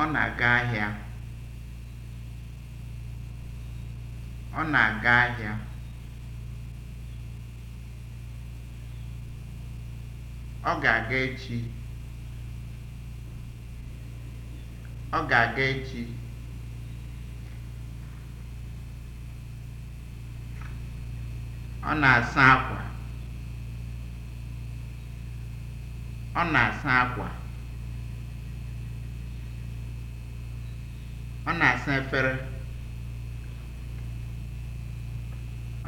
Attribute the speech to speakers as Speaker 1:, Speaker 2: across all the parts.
Speaker 1: Ọ na-aga ahịa. Ọ na-aga ahịa. Ọ ga-aga echi. Ọ ga-aga echi. Ọ na-asa akwa. Ọ na-asa akwa. Ọ na-asa efere.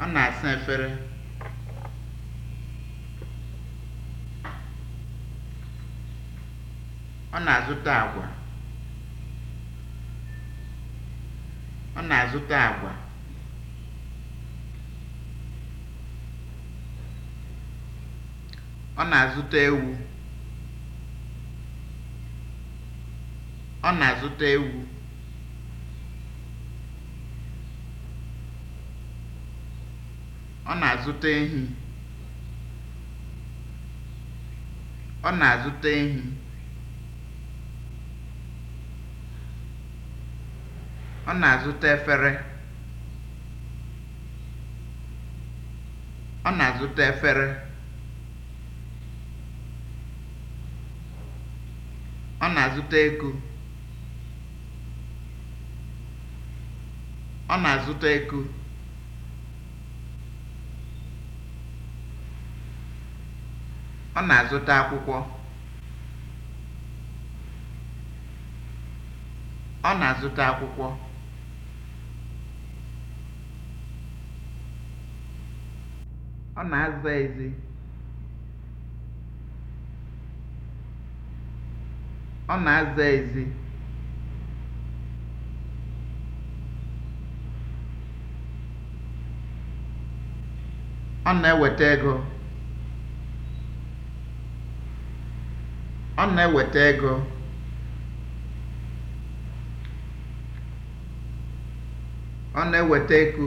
Speaker 1: Ọ na-asa efere. Ọ na-azụta agwa. Ọ na-azụta agwa. Ọ na-azụta ewu. Ọ na-azụta ewu. Ọ na-azụta ehi. Ọ na-azụta ehi. Ọ na-azụta efere. Ọ na-azụta efere. Ọ na-azụta ego. Ọ na-azụta ego. Ọ na-azụta akwụkwọ. Ọ na-azụta akwụkwọ. Ọ na-aza ezi. Ọ na-aza ezi. Ọ na-eweta ego. ọ na-eweta ego ọ na-eweta ego,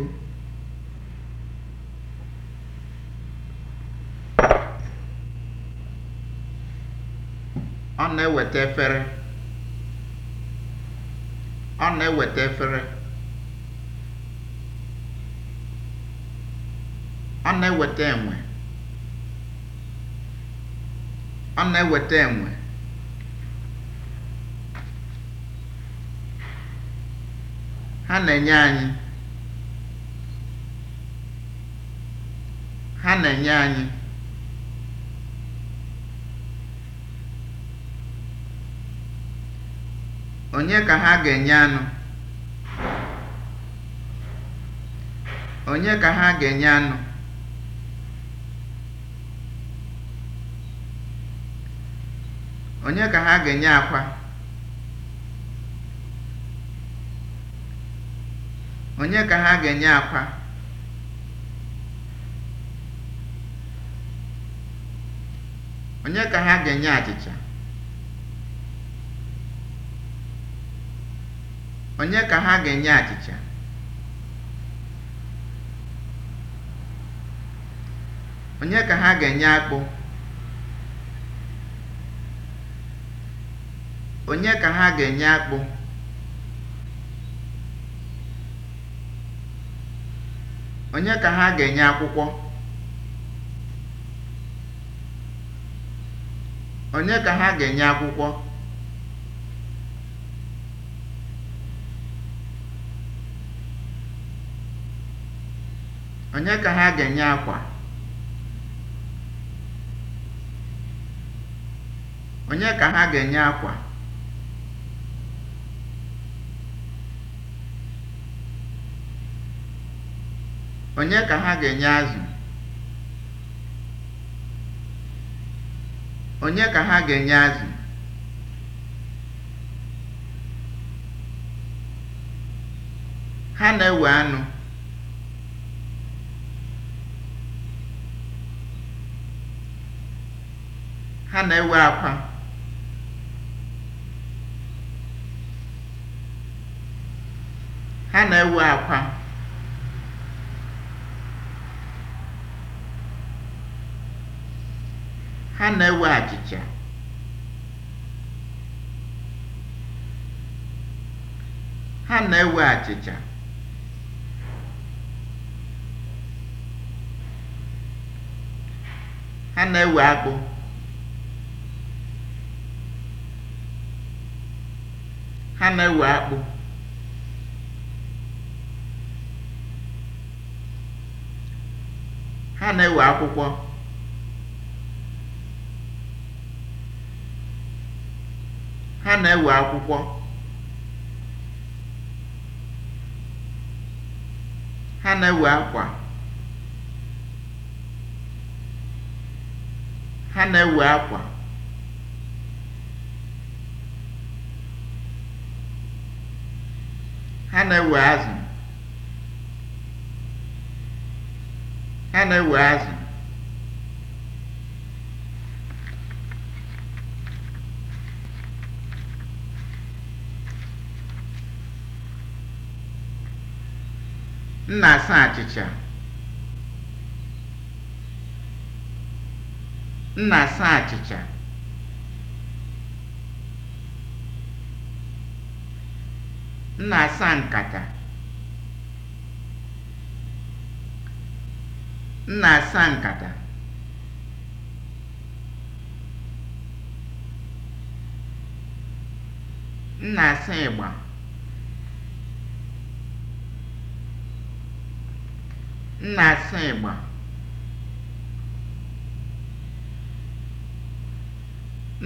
Speaker 1: ọ na-eweta efere ọ na-eweta efere ọ na-eweta enwe ọ na-eweta enwe ha na-enye anyị ha onye ka ha ga-enye anụ onye ka ha ga-enye anụ onye ka ha ga-enye akwa Onye ka ha ga-enye akwa? Onye ka ha ga-enye achịcha? Onye ka ha ga-enye achịcha? Onye ka ha ga-enye akpụ? Onye ka ha ga-enye akpụ? Onye ka ha ga-enye akwụkwọ? Onye ka ha ga-enye akwụkwọ? Onye ka ha ga-enye azụ? Onye ka ha ga-enye azụ? Ha na-ewe anụ. Ha na-ewe akwa. Ha na-ewe akwa. Ha na-ewe achịcha. Ha na-ewe achịcha. Ha na-ewe akpụ. Ha na-ewe akpụ. Ha na-ewe akwụkwọ. Ha na-ewe akwụkwọ. Ha na-ewe akwa. Ha na-ewe akwa. Ha na-ewe azụ. Ha na-ewe azụ. m na-asa achịcha nkata m na-asa nkata na-asa ịgba nna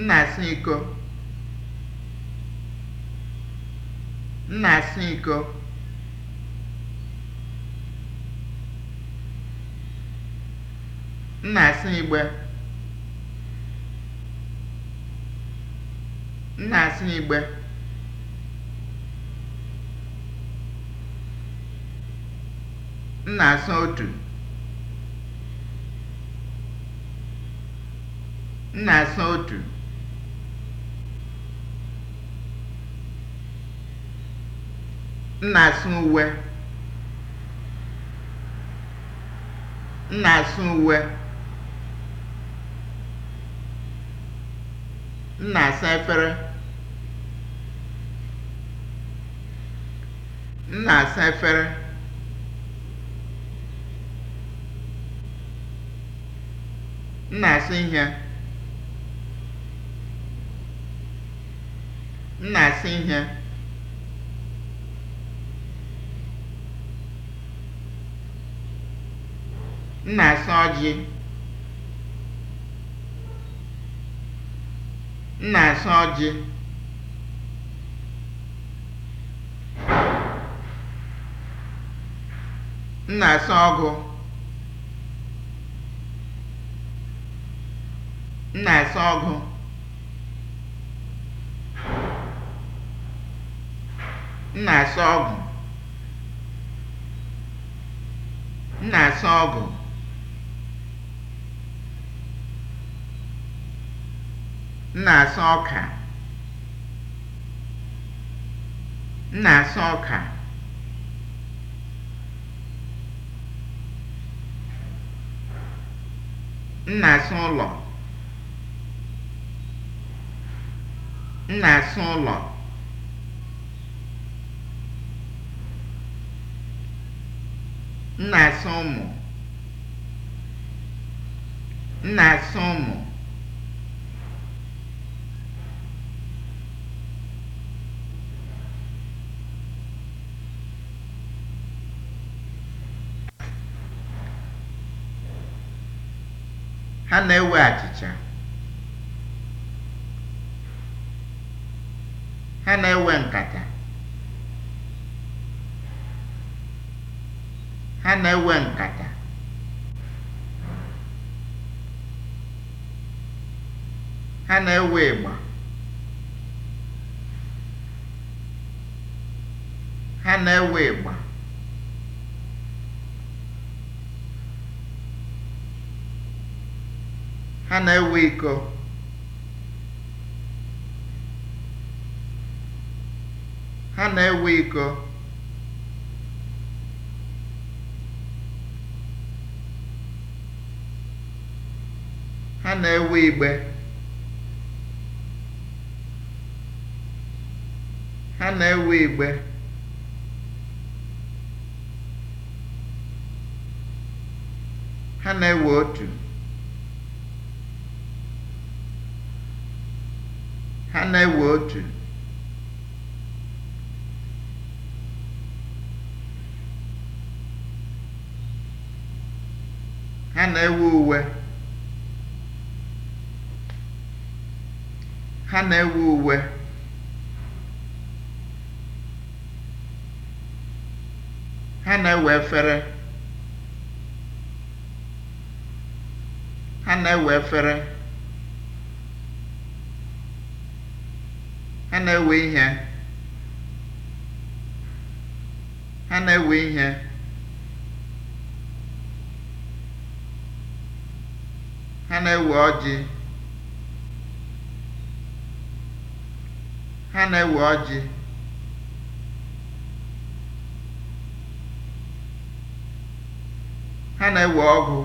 Speaker 1: na-asụ Ịgbo m na nna iko m na-asụ iko igbe m igbe M na-asa otu. M na-asa otu. M na-asa uwe. M na-asa uwe. M na-asa efere. M na-asa efere. m na ihe m na ihe m na-asụ ọjị m na ọjị m na ọgụ M na-ese ọgụ. M na-ese ọgụ. M na-ese ọgụ. na-asa ọka. M na-asa ọka. M na-asa ụlọ. m na-asa ụlọ m na-asa ụmụ m na-asa ụmụ ha na-ewe achịcha ha na-ewe nkata ha na-ewe nkata ha na-ewe ịgba ha na-ewe ịgba ha na-ewe iko Ha na-ewe iko. Ha na-ewe igbe. Ha na-ewe igbe. Ha na-ewe otu. Ha na-ewe otu. Ha na-ewe uwe. Ha na-ewe uwe. Ha na-ewe efere. Ha na-ewe efere. Ha na-ewe ihe. Ha na-ewe ihe. na-ewe ọjị. Ha na-ewe ọjị. Ha na-ewe ọgụ.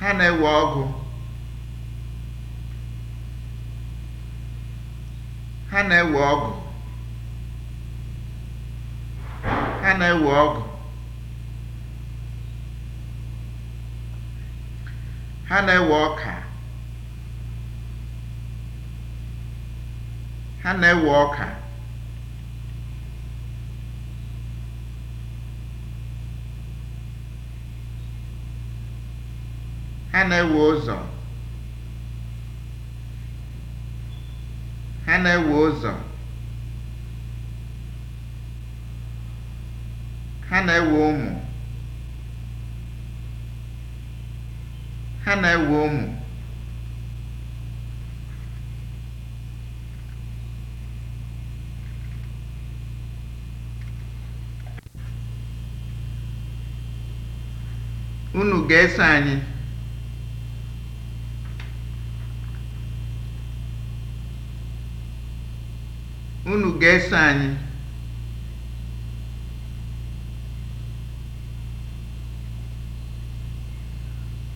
Speaker 1: Ha na-ewe ọgụ. Ha na-ewe ọgwụ Ha na-ewe ọgwụ Ha na-ewe ọka. Ha na-ewe ọka. Ha na-ewe ụzọ. Ha na-ewe ụzọ. Ha na-ewe ụmụ. Ha na-ewe ụmụ. Unu ga-eso Unu ga-eso anyị.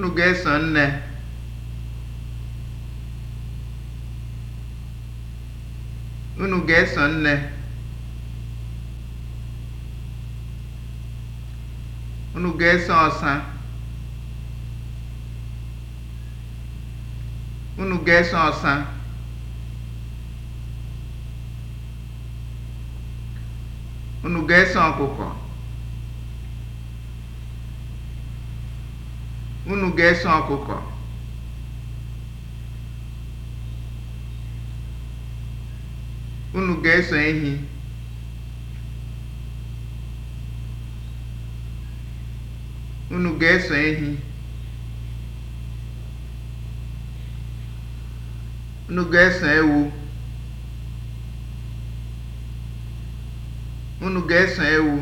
Speaker 1: Unu ga-eso nne. Unu ga-eso nne. Unu ga-eso ọsa. Unu ga-eso ọsa. Unu ga-eso ọkụkọ. unu ga eso ọkụkọ unu ga-eso ehi unu ga-eso ehi unu ga-eso ewu unu ga-eso ewu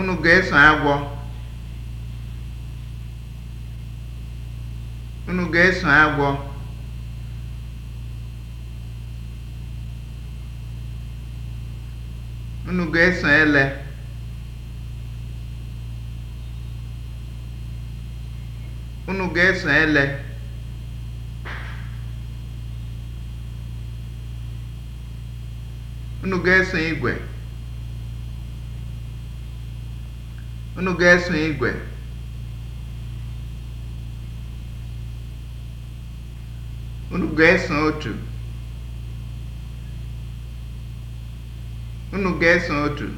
Speaker 1: unu ga-eso agwọ unu ga-eso agwọ unu ga-eso ele unu ga-eso ele unu ga-eso igwe Unu ga-eso igwe? Unu ga-eso otu? Unu ga-eso otu?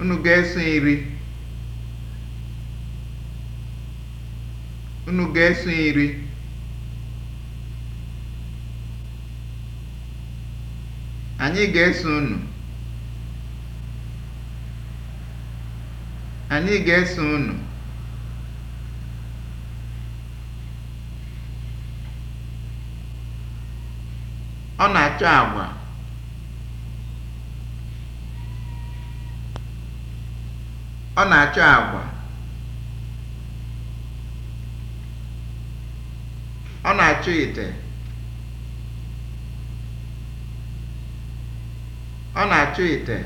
Speaker 1: Unu ga-eso iri? Unu ga-eso iri? Anyị ga-eso unu. Anyị ga-eso unu. Ọ na-achọ agwa. Ọ na-achọ agwa. Ọ na-achọ ite. Ọ na-achọ ite.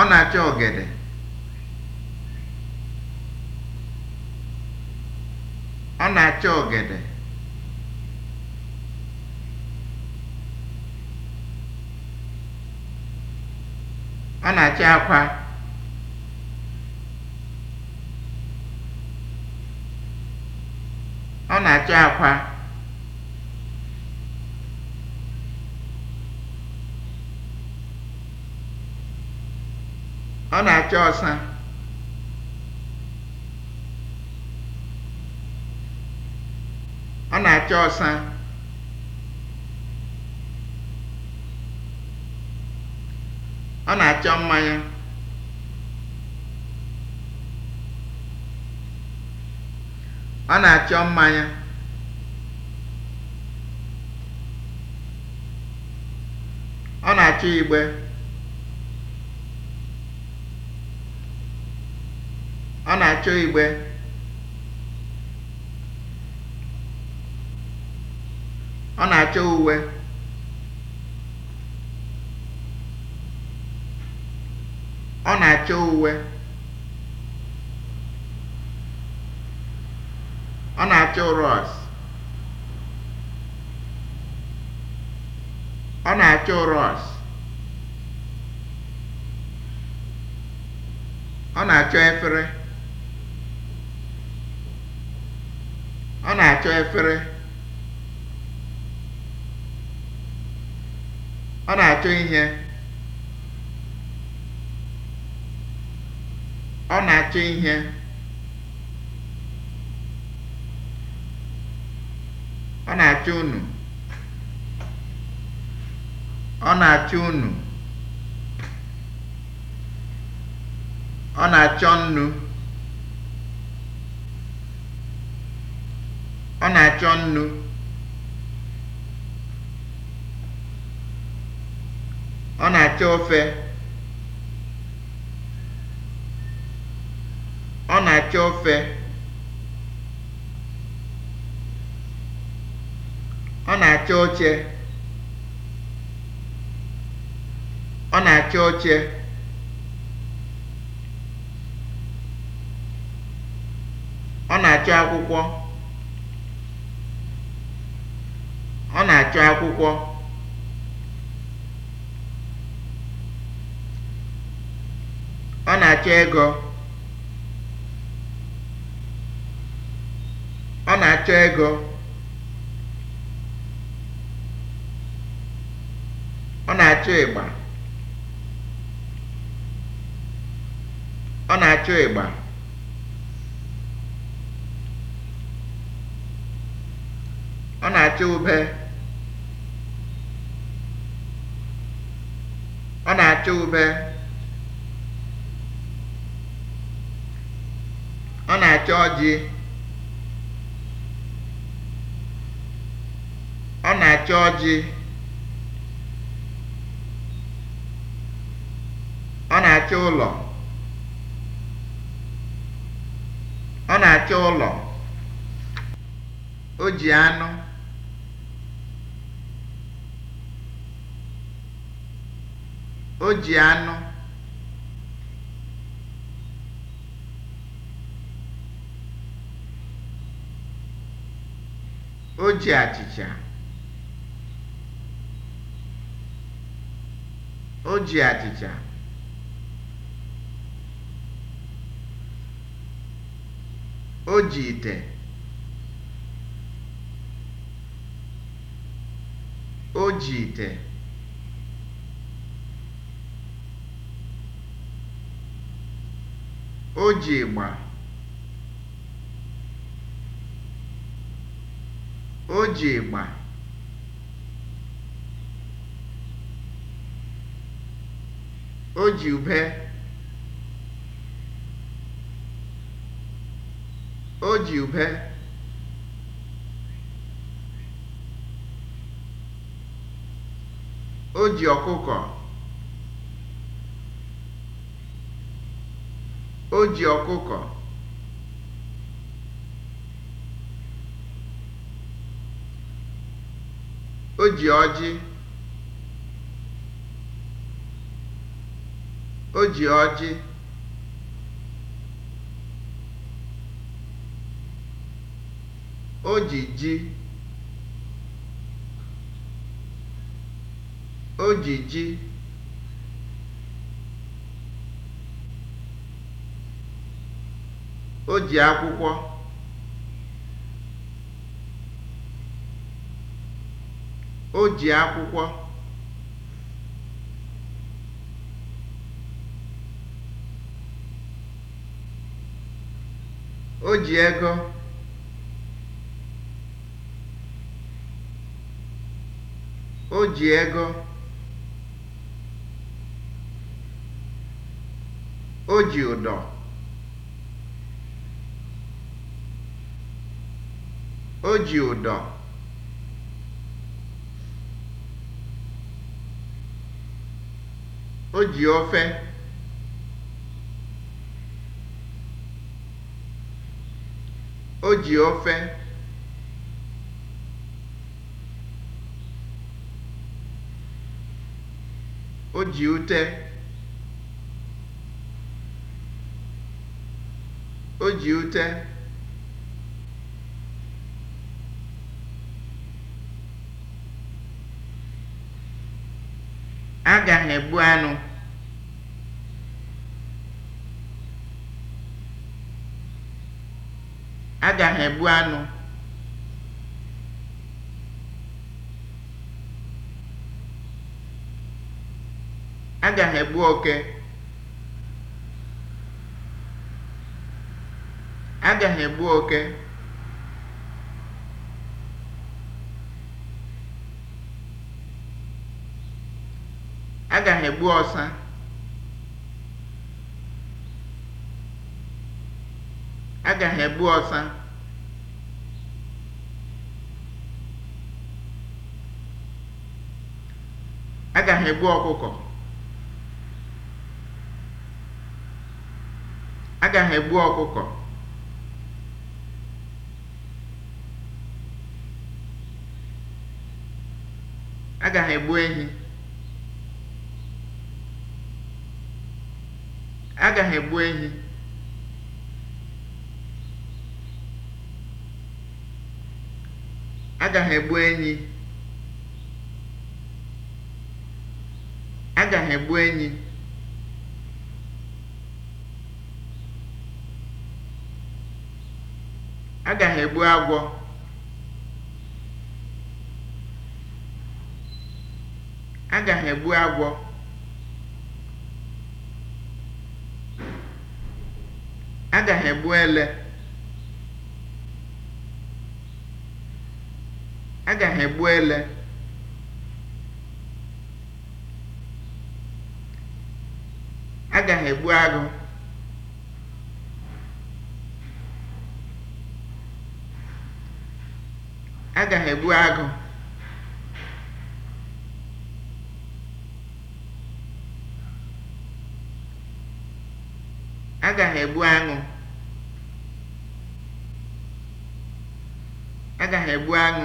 Speaker 1: Ọ na-achọ ọgede. Ọ na-achọ ọgede. Ọ na-achọ akwa. Ọ na-achọ akwa. ọ na-achọ ọsa ọ na acha ọsa ọ na-achọ mmanya ọ na-achọ mmanya ọ na-achọ igbe achọ igbe ọ na-achọ uwe ọ na-achọ uwe ọ na-achọ rọs ọ na-achọ rọs ọ na-achọ efere ọ na-achọ efere ọ na-achọ ihe ọ na-achọ ihe ọ na-achọ ụnụ ọ na-achọ ụnụ ọ na-achọ nnu Ọ na-achọ nnu. Ọ na-achọ ofe. Ọ na-achọ ofe. Ọ na-achọ oche. Ọ na-achọ oche. Ọ na-achọ akwụkwọ. na-achọ akwụkwọ ọ na-achọ ego ọ na-achọ ego ọ na-achọ ịgba ọ na-achọ ịgba ọ na-achọ ube ube ọ na-acha ji ọ na-acha ọjị ọ na-acha ụlọ ọ na-acha ụlọ o ji anụ O ji anụ. O ji achịcha. O ji achịcha. O ji ite. O ji ite. O ji ịgba (o ji ịgba) o ji ube (o ji ube) o ji ọkụkọ O ji ọkụkọ. O ji ọjị. O ji ọjị. O ji ji. O ji ji. O ji akwụkwọ O ji akwụkwọ O ji ego O ji ego O ji ụdọ O ji ụdọ o ji ofe o ji ofe o ji ute o ji ute aja na-egbu anụ aja na-egbu anụ aja na-egbu oke aja na-egbu oke Aga m egbu ọsa. Aga m egbu ọsa. Aga m egbu ọkụkọ. Aga m egbu ọkụkọ. Aga m egbu ehi. agaghị egbu ehi agaghị egbu enyi agaghị egbu enyi agaghị agwọ agaghị egbu agwọ agaghị egbu ele agaghị egbu ele agaghị egbu agụ agaghị egbu agụ Aga ebu aṅụ. Aga ebu aṅụ.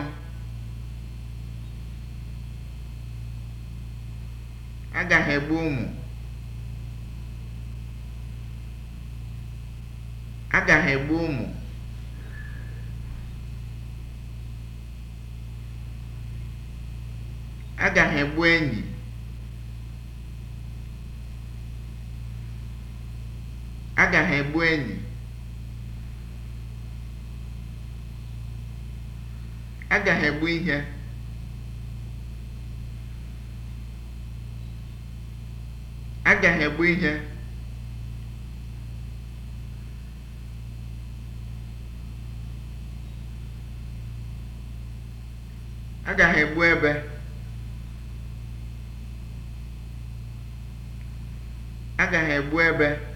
Speaker 1: Aga ebu ụmụ. Aga ebu ụmụ. Aga ebu enyi. Aga ebu egbu enyi. Aga m egbu ihe. Aga m egbu ihe. Aga m egbu ebe. Aga m egbu ebe.